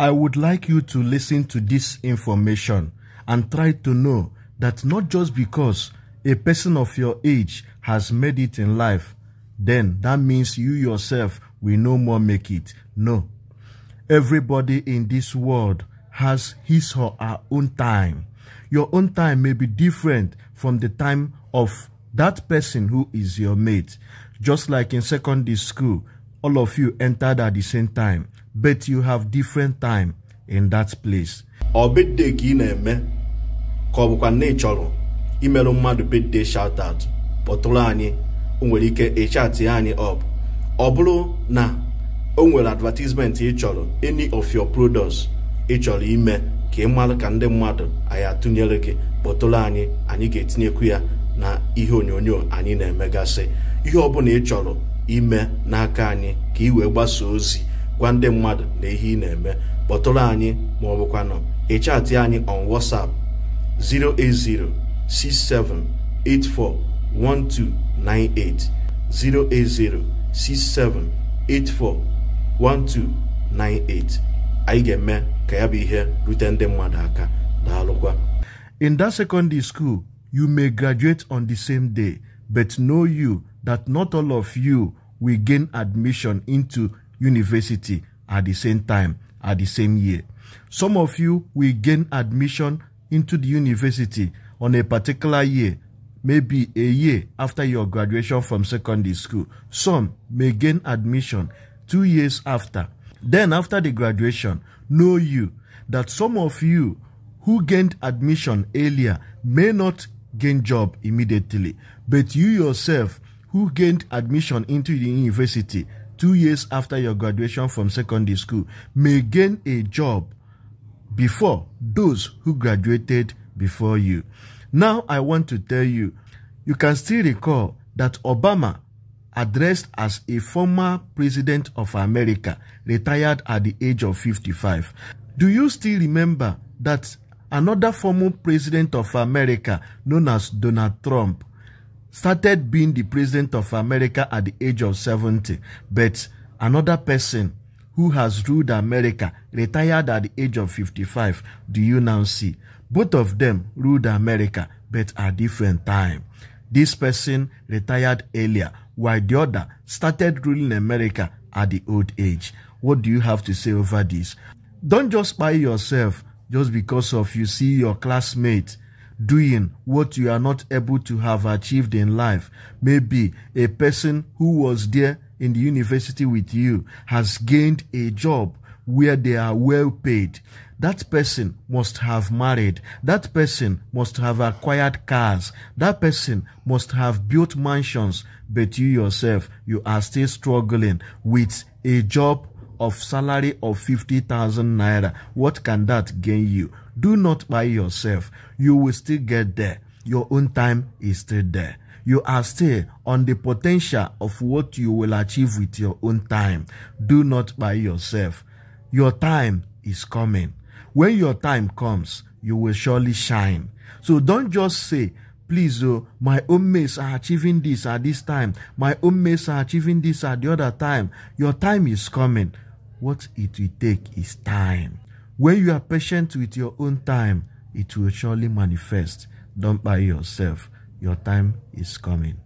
I would like you to listen to this information and try to know that not just because a person of your age has made it in life, then that means you yourself will no more make it. No. Everybody in this world has his or her own time. Your own time may be different from the time of that person who is your mate. Just like in secondary school, all of you entered at the same time. but you have different time in that place. ọ bedde ka ị na-eme ka ọ bụkwa na ị chọrọ imerụ mmadụ bedde shout out kpọtụrụ anyị o nwere ike ịchatị anyị up ọbụrụ na o nwere advertisement ị chọrọ any of your products ị chọrọ ime ka ị mara ka ndị mmadụ anyị atụnyere gị kpọtụrụ anyị anyị ga-etinyekwu ya na ihe onyonyo anyị na-emegasị ihe ọbụla ị chọrọ ime n'aka anyị ka ị wee gbasaa ozi gwa ndị mmadụ na ihe ị na-eme kpọtụrụ anyị ma ọ bụkwanụ ịchatị anyị on WhatsApp 08067841298 08067841298 anyị ga-eme ka ya bụ ihe rute ndị mmadụ aka daalụkwa in that secondary school you may graduate on the same day but know you that not all of you will gain admission into university at the same time, at the same year. Some of you will gain admission into the university on a particular year, maybe a year after your graduation from secondary school. Some may gain admission two years after. Then after the graduation, know you that some of you who gained admission earlier may not gain job immediately, but you yourself who gained admission into the university two years after your graduation from secondary school may gain a job before those who graduated before you. Now I want to tell you, you can still recall that Obama, addressed as a former president of America, retired at the age of 55. Do you still remember that another former president of America, known as Donald Trump, started being the president of America at the age of 70, but another person who has ruled America retired at the age of 55. Do you now see? Both of them ruled America, but at different time. This person retired earlier, while the other started ruling America at the old age. What do you have to say over this? Don't just buy yourself just because of you see your classmate doing what you are not able to have achieved in life. Maybe a person who was there in the university with you has gained a job where they are well paid. That person must have married. That person must have acquired cars. That person must have built mansions. But you yourself, you are still struggling with a job of salary of 50,000 naira. What can that gain you? Do not buy yourself. You will still get there. Your own time is still there. You are still on the potential of what you will achieve with your own time. Do not buy yourself. Your time is coming. When your time comes, you will surely shine. So don't just say, please, oh, my own mates are achieving this at this time. My own mates are achieving this at the other time. Your time is coming. What it will take is time. When you are patient with your own time, it will surely manifest. Don't buy yourself. Your time is coming.